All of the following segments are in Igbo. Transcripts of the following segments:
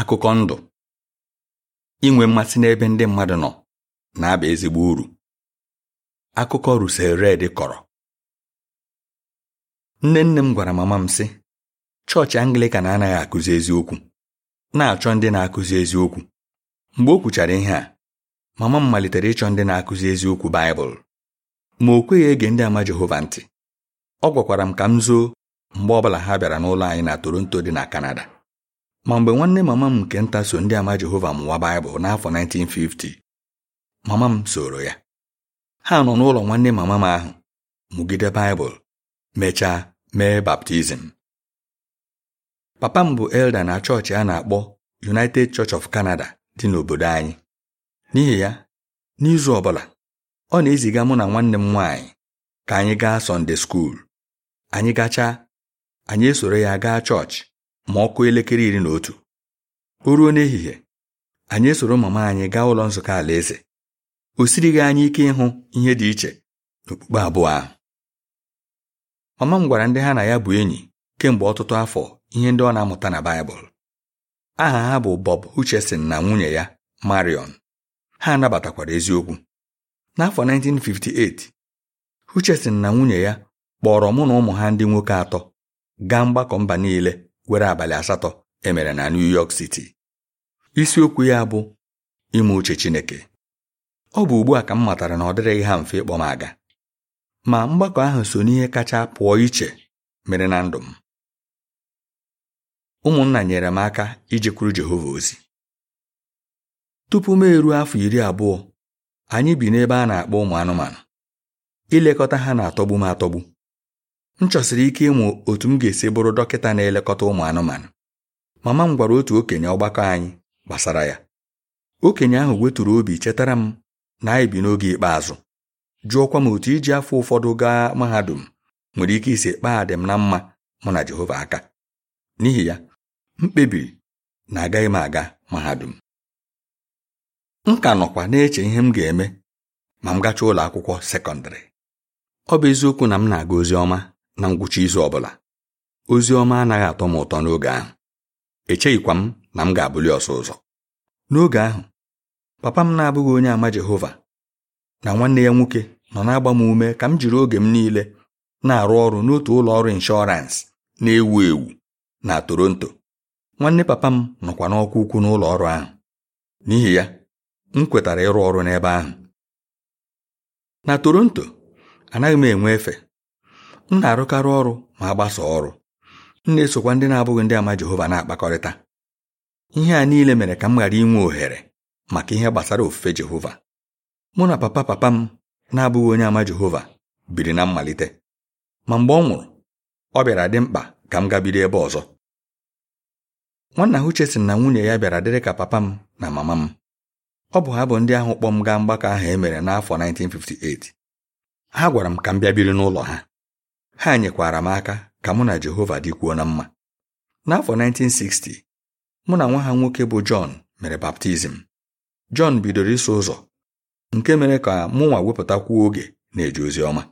akụkọ ndụ inwe mmasị n'ebe ndị mmadụ nọ na-aba ezigbo uru akụkọ Russell red kọrọ nne nne m gwara mama m sị chọọchị Anglịkan anaghị akụzi eziokwu na-achọ ndị na-akụzi eziokwu mgbe o kwuchara ihe a mama m malitere ịchọ ndị na-akụzi eziokwu Baịbụl ma o kweghị ege ndị ama Jehova ntị ọ gwakwara m ka m zoo mgbe ọbụla ha bịara n'ụlọ anyị na Toronto dị na Kanada ma mgbe nwanne mama m nke nta so ndị ama Jehova mụwa Baịbụl n'afọ 1950 mama m soro ya ha nọ n'ụlọ nwanne mama m ahụ mụgide Baịbụl mechaa mee baptizim papa m bụ elda na chọọchị a na-akpọ United Church of Canada dị n'obodo anyị n'ihi ya n'izu ọbụla ọ na-eziga mụ na nwanne m nwaanyị ka anyị gaa Sọnde anyị gachaa anyị esoro ya gaa chọọchị ma ọkụ elekere iri na otu o ruo n'ehihie anyị esoro mama anyị gaa ụlọ nzukọ alaeze o gị anyị ike ịhụ ihe dị iche n'okpukpe abụọ ahụ mama m gwara ndị ha na ya bụ enyi kemgbe ọtụtụ afọ ihe ndị ọ na-amụta na Baịbụl aha ha bụ Bob uchesin na nwunye ya Marion ha nabatakwara eziokwu n'afọ 1958 Hutcherson na nwunye ya kpọrọ mụ na ụmụ ha ndị nwoke atọ gaa mgbakọ mba niile were abalị asatọ emere na New York City isiokwu ya bụ ime uche Chineke ọ bụ ugbu a ka m matara na ọ dịrịghị ha mfe ịkpọ m aga ma mgbakọ ahụ so n'ihe kacha pụọ iche mere na ndụ m ụmụnna nyere m aka iji ijekwuru Jehova ozi tupu m eruo afọ iri abụọ anyị bi n'ebe a na-akpọ ụmụ anụmanụ ilekọta ha na-atọgbu m atọgbu m chọsiri ike ịmụ otu m ga-esi bụrụ dọkịta na-elekọta ụmụ anụmanụ mama m gwara otu okenye ọgbakọ anyị gbasara ya okenye ahụ weturu obi chetara m na anyị bi n'oge ikpeazụ jụọkwa m otu iji afọ ụfọdụ gaa mahadum nwere ike isi kpaa m na mma mụ na Jehova aka n'ihi ya m kpebiri na agaghị m aga mahadum m ka nọkwa na-eche ihe m ga-eme ma m gachaa ụlọ akwụkwọ sekọndịrị ọ bụ eziokwu na m na-aga ozi ọma na ngwụcha izu ọbụla ozi ọma anaghị atọ m ụtọ n'oge ahụ echeghịkwa m na m ga-abụli ọsọ ụzọ n'oge ahụ papa m na-abụghị onye àmà Jehova na nwanne ya nwoke nọ na-agba m ume ka m jiri oge m niile na-arụ ọrụ n'otu ụlọ ọrụ inshọransị na-ewu ewu na Toronto nwanne papa m nọkwa n'ọkwa ukwu n'ụlọ ọrụ ahụ n'ihi ya m kwetara ịrụ ọrụ n'ebe ahụ na Toronto anaghị m enwe efe m na-arụkarị ọrụ ma gbasa ọrụ m na-esokwa ndị na-abụghị ndị ama Jehova na-akpakọrịta ihe a niile mere ka m ghara inwe ohere maka ihe gbasara ofufe Jehova mụ na papa papa m na-abụghị onye ama Jehova biri na mmalite ma mgbe ọ nwụrụ ọ bịara dị mkpa ka m gabido ebe ọzọ nwanna ha uche sị na nwunye ya bịara dịrị ka papa m na mama m ọ bụ ha bụ ndị ahụ kpọ m gaa mgbakọ ahụ e mere n'afọ 1958 ha gwara m ka m bịa biri n'ụlọ ha ha nyekwara m aka ka mụ na Jehova dịkwuo na mma n'afọ 1960 mụ na nwa ha nwoke bụ Jọn mere baptizim Jọn bidoro iso ụzọ nke mere ka mụ nwa wepụtakwuo oge na-eje ozi ọma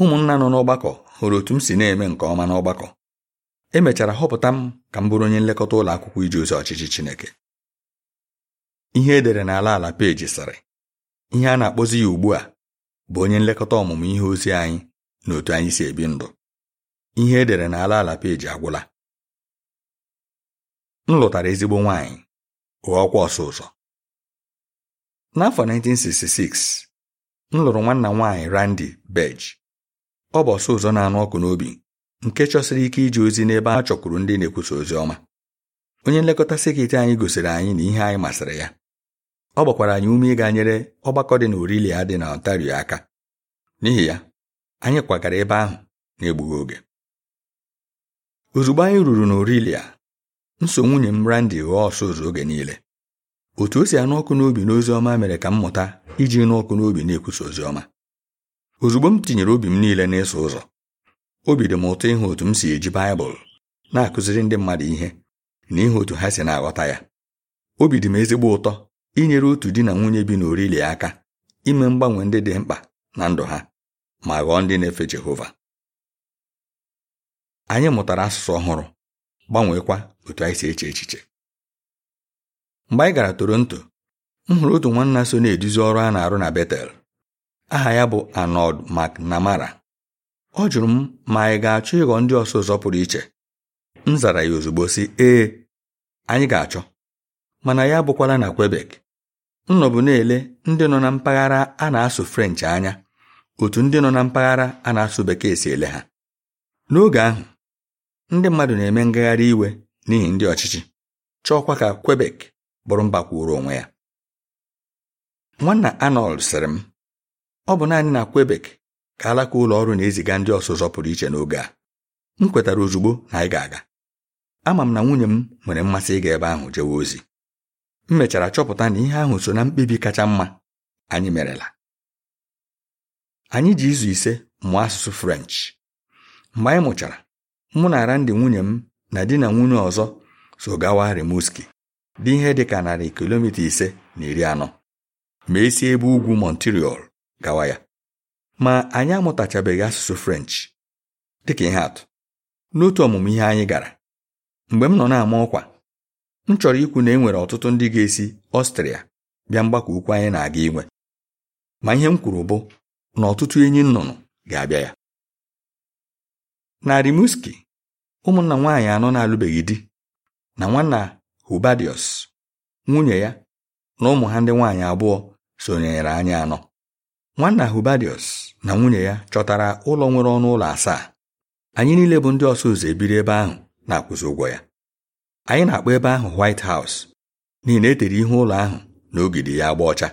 ụmụnna nọ n'ọgbakọ hụrụ otu m si na-eme nke ọma n'ọgbakọ emechara họpụta m ka m bụrụ onye nlekọta ụlọ akwụkwọ iji ozi ọchịchị Chineke ihe edere n'ala ala peji sịrị ihe a na-akpọzi ya ugbu a bụ onye nlekọta ọmụmụ ihe ozi anyị na otu anyị si ebi ndụ ihe edere n'ala ala peji agwụla m lụtara ezigbo nwaanyị ọkwa ọsọ ụzọ n'afọ 1966 m lụrụ nwanna m nwaanyị Randy ọ bụ ọsọ ụzọ na-anụ ọkụ n'obi nke chọsiri ike iji ozi n'ebe a chọkwuru ndị na-ekwusa ozi ọma onye nlekọta sekit anyị gosiri anyị na ihe anyị masịrị ya ọ gbakwara anyị ume ịga nyere ọgbakọ dị na Orilia dị na Ontario aka n'ihi ya anyị kwagara ebe ahụ na-egbughị oge ozugbo anyị ruru n'orilia m so nwunye m brandi ghọọ ọsọ ụzọ oge niile otu o si anụ ọkụ n'obi n'ozi ọma mere ka m mụta iji nụ ọkụ n'obi na-ekwusa ozi ọma ozugbo m tinyere obi m niile n'ịsụ ụzọ obi dị m ụtọ ịhụ otu m si eji baịbụl na-akụziri ndị mmadụ ihe na ịhụ otu ha si na-aghọta ya obi dị m ezigbo ụtọ inyere otu di na nwunye bi n'orilia aka ime mgbanwe ndị dị mkpa na ndụ ha ma ghọọ ndị na-efe Jehova anyị mụtara asụsụ ọhụrụ gbanweekwa otu anyị si eche echiche mgbe anyị gara Toronto m hụrụ otu nwanna so na-eduzi ọrụ a na-arụ na Betel aha ya bụ Arnold MacNamara, ọ jụrụ m ma anyị ga-achọ ịghọ ndị ọsọ ụzọ pụrụ iche m zara ya ozugbo sị ee anyị ga-achọ mana ya abụkwala na Quebec nọbụ na-ele ndị nọ na mpaghara a na-asụ French anya otu ndị nọ na mpaghara a na-asụ bekee si ele ha n'oge ahụ ndị mmadụ na-eme ngagharị iwe n'ihi ndị ọchịchị chọọkwa ka kwebek bụrụ mba kwụrụ onwe ya nwanna anold sịrị m ọ bụ naanị na kwebek ka alaka ụlọ ọrụ na-eziga ndị ọsụzọ pụrụ iche n'oge a m kwetara ozugbo na anyị ga-aga ama m na nwunye m nwere mmasị ịga ebe ahụ jewe ozi m mechara chọpụta na ihe ahụ so na mkpebi kacha mma anyị merela anyị ji izu ise mụọ asụsụ french mgbe anyị mụchara mụ na arandị nwunye m na di na nwunye ọzọ so gawa remuski dị ihe dị ka narị kilomita ise na iri anọ ma esi ebe ugwu Montreal gawa ya ma anyị amụtachabeghị asụsụ french dịka ihe atụ n'otu ọmụmụ ihe anyị gara mgbe m nọ na-ama ọkwa m chọrọ ikwu na e nwere ọtụtụ ndị ga-esi ọstrịa bịa mgbakọ ukwu anyị na-aga inwe ma ihe m kwuru bụ na ọtụtụ enyi nnụnụ ga-abịa ya na Rimouski ụmụnna nwaanyị anọ na-alụbeghị di na nwanna Hubadius nwunye ya na ụmụ ha ndị nwaanyị abụọ sonyere anyị anọ nwanna Hubadius na nwunye ya chọtara ụlọ nwere ọnụ ụlọ asaa anyị niile bụ ndị ọsọ ụzọ ebiri ebe ahụ na-akwụzi ụgwọ ya anyị na-akpọ ebe ahụ White House n'ihi na e tere ihe ụlọ ahụ na ogidi ya agba ọcha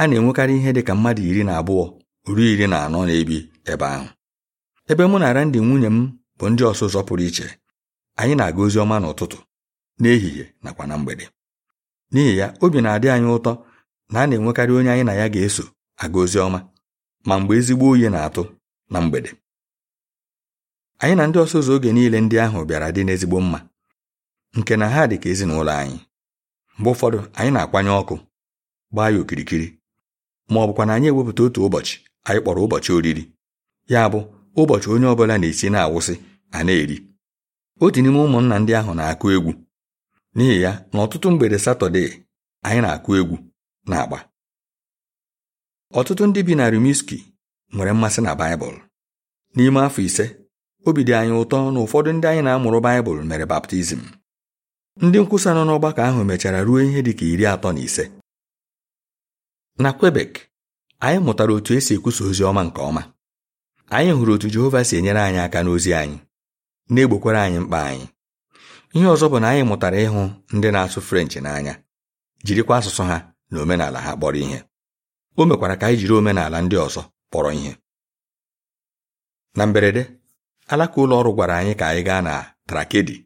a na-enwekarị ihe dị ka mmadụ iri na abụọ ruo iri na anọ na-ebi ebe ahụ ebe mụ na Randy nwunye m bụ ndị ọsụzọ pụrụ iche anyị na-aga ozi ọma n'ụtụtụ n'ehihie nakwa na mgbede n'ihi ya obi na-adị anyị ụtọ na a na-enwekarị onye anyị na ya ga-eso aga ozi ọma ma mgbe ezigbo oyi na-atụ na mgbede anyị na ndị ọsụzọ oge niile ndị ahụ bịara dị n'ezigbo mma nke na ha dị ka ezinụlọ anyị mgbe ụfọdụ anyị na-akwanye ọkụ gbaa ya okirikiri ma ọ bụkwa na anyị ewepụta otu ụbọchị anyị kpọrọ ụbọchị oriri ya bụ ụbọchị onye ọbụla na-esi na-awụsị a na-eri otu n'ime ụmụnna ndị ahụ na-akụ egwu n'ihi ya na ọtụtụ mgbede satọde anyị na-akụ egwu na agba ọtụtụ ndị bi na rimiski nwere mmasị na Baịbụl n'ime afọ ise obi dị anyị ụtọ na ụfọdụ ndị anyị na-amụrụ Baịbụl mere baptizim ndị nkwusa nọ n'ọgbakọ ahụ mechara ruo ihe dị ka iri atọ na ise na kwebek anyị mụtara otu esi ekwusa ozi ọma nke ọma anyị hụrụ otu Jehova si enyere anyị aka n'ozi anyị na-egbokwara anyị mkpa anyị ihe ọzọ bụ na anyị mụtara ịhụ ndị na-asụ frenchị n'anya jirikwa asụsụ ha na omenala ha kpọrọ ihe o mekwara ka anyị jiri omenala ndị ọzọ kpọrọ ihe na mberede alaka ụlọ ọrụ gwara anyị ka anyị gaa na trakedi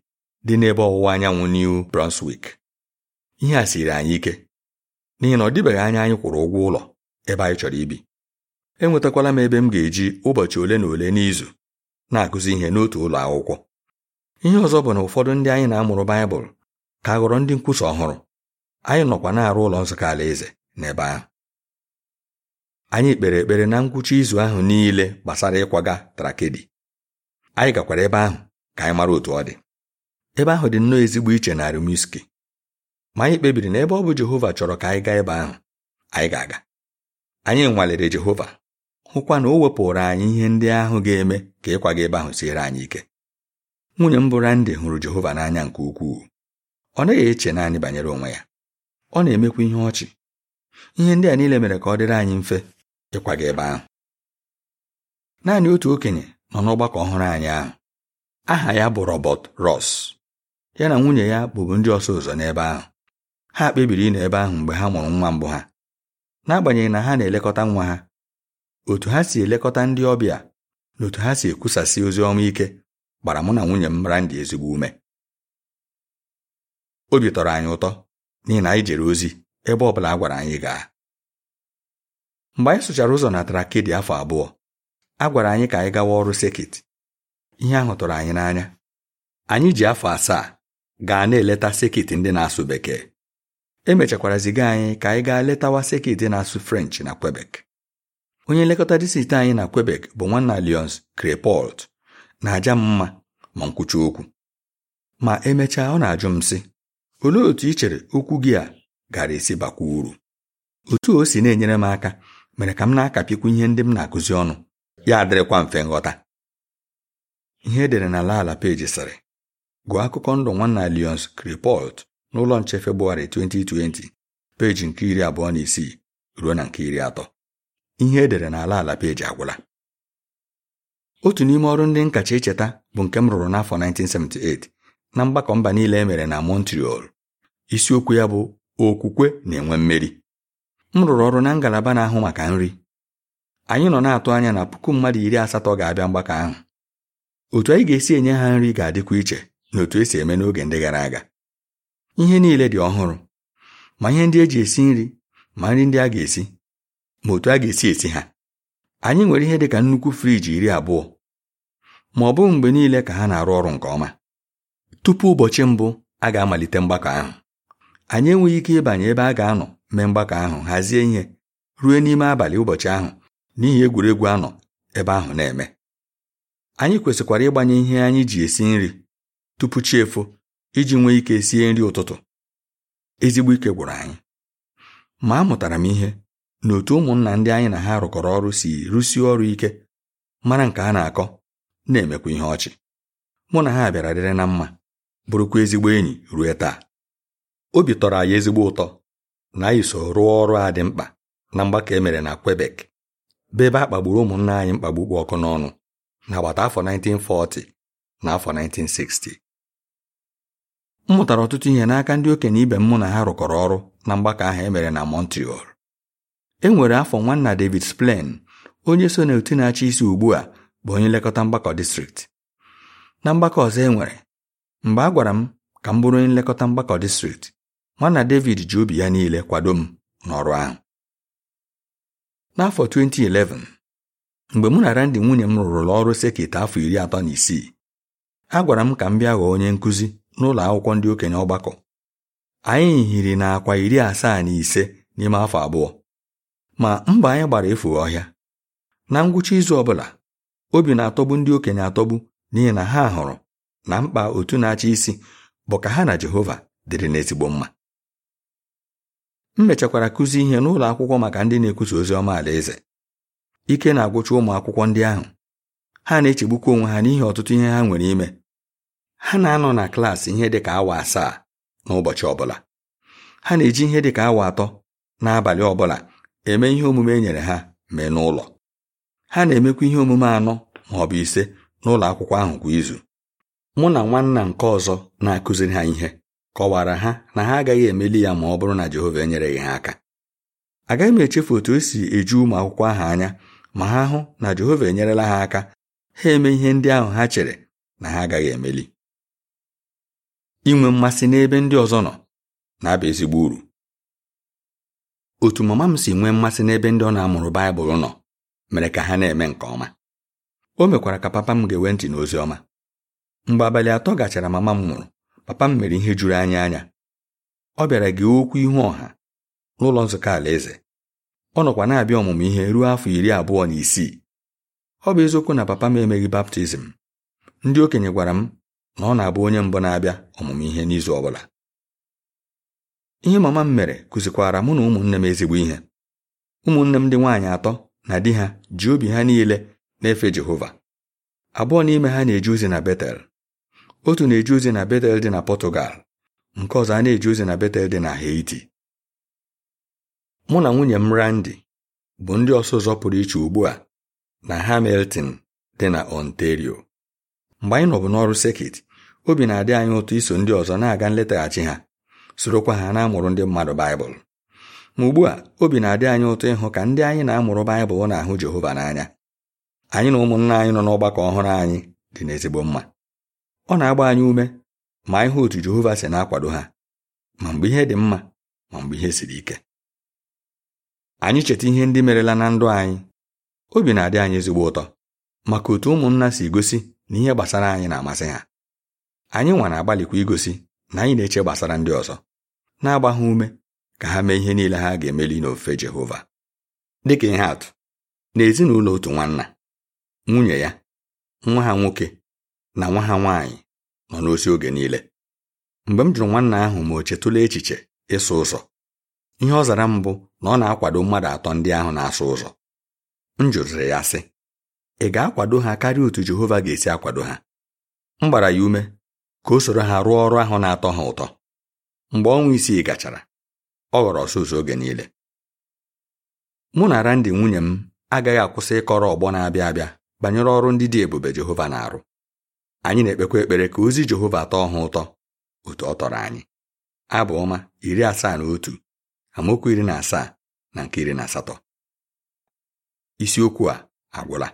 dị n'ebe ọwụwa anyanwụ New Brunswick ihe a siri anyị ike n'ihi na ọ dịbeghị anya anyị kwụrụ ụgwọ ụlọ ebe anyị chọrọ ibi enwetakwala m ebe m ga-eji ụbọchị ole na ole n'izu na-akụzi ihe n'otu ụlọ akwụkwọ ihe ọzọ bụ na ụfọdụ ndị anyị na-amụrụ baịbụl ka ghọrọ ndị nkwusa ọhụrụ anyị nọkwa na-arụ ụlọ nzukọ alaeze n'ebe ahụ anyị kpere ekpere na ngwụcha izu ahụ niile gbasara ịkwaga trakedi anyị gakwara ebe ahụ ka anyị mara otu ọ dị ebe ahụ dị nnọọ ezigbo iche na Rimouski ma anyị kpebiri na ebe ọ bụ Jehova chọrọ ka anyị gaa ebe ahụ anyị ga-aga anyị nwalere Jehova hụkwa na o wepụrụ anyị ihe ndị ahụ ga-eme ka ịkwaga ebe ahụ siere anyị ike nwunye m bụ Randi hụrụ Jehova n'anya nke ukwuu ọ naghị eche naanị banyere onwe ya ọ na-emekwa ihe ọchị ihe ndị a niile mere ka ọ dịrị anyị mfe ịkwaga ebe ahụ naanị otu okenye nọ n'ọgbakọ ọhụrụ anyị ahụ aha ya bụ Robert Ross ya na nwunye ya bụbu ndị ọsọ ụzọ n'ebe ahụ ha kpebiri ịnọ ebe ahụ mgbe ha mụrụ nwa mbụ ha n'agbanyeghị na ha na-elekọta nwa ha otu ha si elekọta ndị ọbịa na otu ha si ekwusasị ozi ọma ike gbara mụ na nwunye m mara ndị ezigbo ume obi tọrọ anyị ụtọ n'ihi na anyị jere ozi ebe ọ bụla a gwara anyị gaa mgbe anyị sụchara ụzọ na trakedi afọ abụọ a gwara anyị ka anyị gawa ọrụ sekit ihe ahụ tụrụ anyị n'anya anyị ji afọ asaa gaa na-eleta sekit ndị na-asụ bekee emechakwara ziga anyị ka anyị gaa letawa sekit na-asụ french na kwebek onye nlekọta distrikti anyị na kwebek bụ nwanna lions crepolt na-aja m mma ma nkwucha okwu ma emechaa ọ na-ajụ m sị olee otu ị chere okwu gị a gara esi bakwa uru otu o si na-enyere m aka mere ka m na-akapịkwu ihe ndị m na-akụzi ọnụ ya dịrịkwa mfe nghọta ihe edere na ala ala peji sịrị gụọ akụkọ ndụ nwanna lions crepolt n'ụlọ nche Febụwarị 2020 peji nke iri abụọ na isii ruo na nke iri atọ ihe edere n'ala ala peji agwụla otu n'ime ọrụ ndị nkacha icheta bụ nke m rụrụ n'afọ 1978 na mgbakọ mba niile e mere na Montreal isiokwu ya bụ okwukwe na-enwe mmeri m rụrụ ọrụ na ngalaba na-ahụ maka nri anyị nọ na-atụ anya na puku mmadụ iri asatọ ga-abịa mgbakọ ahụ otu anyị ga-esi enye ha nri ga-adịkwa iche na otu esi eme n'oge ndị gara aga ihe niile dị ọhụrụ ma ihe ndị e ji esi nri ma nri ndị a ga-esi ma otu a ga-esi esi ha anyị nwere ihe dị ka nnukwu friji iri abụọ ma ọ bụghị mgbe niile ka ha na-arụ ọrụ nke ọma tupu ụbọchị mbụ a ga-amalite mgbakọ ahụ anyị enweghị ike ịbanye ebe a ga-anọ mee mgbakọ ahụ hazie ihe ruo n'ime abalị ụbọchị ahụ n'ihi egwuregwu anọ ebe ahụ na-eme anyị kwesịkwara ịgbanye ihe anyị ji esi nri tupu chi efo iji nwee ike sie nri ụtụtụ ezigbo ike gwụrụ anyị ma amụtara m ihe na otu ụmụnna ndị anyị na ha rụkọrọ ọrụ si rụsie ọrụ ike mara nke a na-akọ na-emekwa ihe ọchị mụ na ha bịara dịrị na mma bụrụkwa ezigbo enyi ruo taa obi tọrọ anyị ezigbo ụtọ na anyị so rụọ ọrụ a dị mkpa na mgbakọ emere na Quebec be ebe a kpagburu ụmụnna anyị mkpagbu kpụ ọkụ n'ọnụ n'agbata afọ 1940 na afọ 1960 m mụtara ọtụtụ ihe n'aka ndị okenye ibe m mụ na ha rụkọrọ ọrụ na mgbakọ ahụ e mere na Montreal e nwere afọ nwanna David splen onye so na otu na-achị isi ugbu a bụ onye nlekọta mgbakọ distrikti na mgbakọ ọzọ e nwere mgbe a gwara m ka m bụrụ onye nlekọta mgbakọ distrikti nwanna David ji obi ya niile kwado m n'ọrụ ahụ n'afọ 2011 mgbe mụ na Randy nwunye m rụrụla ọrụ sekit afọ iri atọ na isii a gwara m ka m bịa ghọọ onye nkụzi n'ụlọ akwụkwọ ndị okenye ọgbakọ anyị hiri na iri asaa na ise n'ime afọ abụọ ma mba anyị gbara efu ọhịa na ngwụcha izu ọbụla obi na-atọgbu ndị okenye atọgbu n'ihi na ha hụrụ na mkpa otu na-achị isi bụ ka ha na Jehova dịrị n'ezigbo mma m mechakwara kụzi ihe n'ụlọ akwụkwọ maka ndị na-ekwusa ozi ọma alaeze ike na-agwụcha ụmụ akwụkwọ ndị ahụ ha na-echegbukwa onwe ha n'ihi ọtụtụ ihe ha nwere ime ha na-anọ na klaasị ihe dịka awa asaa n'ụbọchị ọbụla ha na-eji ihe dịka awa atọ n'abalị ọbụla eme ihe omume e nyere ha mee n'ụlọ ha na-emekwa ihe omume anọ ma ọ bụ ise n'ụlọ akwụkwọ ahụ kwa izu mụ na nwanna nke ọzọ na-akụziri ha ihe kọwara ha na ha agaghị emeli ya ma ọ bụrụ na Jehova enyereghị ha aka agaghị m echefu otu e si eju ụmụ akwụkwọ ahụ anya ma ha hụ na Jehova enyerela ha aka ha eme ihe ndị ahụ ha chere na ha agaghị emeli inwe mmasị n'ebe ndị ọzọ nọ na-aba ezigbo uru otu mama m si nwee mmasị n'ebe ndị ọ na-amụrụ Baịbụl nọ mere ka ha na-eme nke ọma o mekwara ka papa m ga enwe ntị n'ozi ọma mgbe abalị atọ gachara mama m mụrụ papa m mere ihe juru anya anya ọ bịara gị okwu ihu ọha n'ụlọ nzukọ alaeze ọ nọkwa na-abịa ọmụmụ ihe ruo afọ iri abụọ na isii ọ bụ eziokwu na papa m emeghị baptizim ndị okenye gwara m na ọ na-abụ onye mbụ na-abịa ọmụmụ ihe n'izu ọ bụla ihe mama m mere kụzikwara mụ na ụmụnne m ezigbo ihe ụmụnne m ndị nwaanyị atọ na di ha ji obi ha niile na-efe Jehova abụọ n'ime ha na eji ozi na Betel otu na eji ozi na Betel dị na pọtugal nke ọzọ a na eji ozi na Betel dị na Haiti mụ na nwunye m Randi bụ ndị ọsọ ụzọ pụrụ iche ugbu a na Hamilton dị na Ontario mgbe anyị nọbụ n'ọrụ sekit obi na-adị anyị ụtọ iso ndị ọzọ na-aga nletaghachi ha sorokwa ha na-amụrụ ndị mmadụ baịbụl ma ugbu a obi na-adị anyị ụtọ ịhụ ka ndị anyị na-amụrụ baịbụl na-ahụ Jehova n'anya anyị na ụmụnna anyị nọ n'ọgbakọ ọhụrụ anyị dị n'ezigbo mma ọ na-agba anyị ume ma ịhụ otu Jehova si na-akwado ha ma mgbe ihe dị mma ma mgbe ihe siri ike anyị cheta ihe ndị merela na ndụ anyị obi na-adị anyị ezigbo ụtọ maka otu ụmụnna si gosi na ihe gbasara anyị na-amasị ha anyị nwa agbalịkwa igosi na anyị na-eche gbasara ndị ọzọ na-agba ha ume ka ha mee ihe niile ha ga-emeli n'ofe Jehova dịka ihe atụ n'ezinụlọ otu nwanna nwunye ya nwa ha nwoke na nwa ha nwaanyị nọ n'osi oge niile mgbe m jụrụ nwanna ahụ ma o chetụla echiche ịsụ ụzọ ihe ọ zara mbụ na ọ na-akwado mmadụ atọ ndị ahụ na-asụ ụzọ m jụrụrụ ya sị ị ga-akwado ha karịa otu Jehova ga-esi akwado ha m gbara ya ume ka o soro ha rụọ ọrụ ahụ na-atọ ha ụtọ mgbe ọnwa isii gachara ọ ghọrọ ọsụsọ oge niile mụ na Randi nwunye m agaghị akwụsị ịkọrọ ọgbọ na-abịa abịa banyere ọrụ ndị dị ebube Jehova na-arụ anyị na-ekpekwa ekpere ka ozi Jehova tọọ ha ụtọ otu ọ tọrọ anyị abụ ọma iri asaa na otu amaokwu iri na asaa na nke iri na asatọ isiokwu a agwụla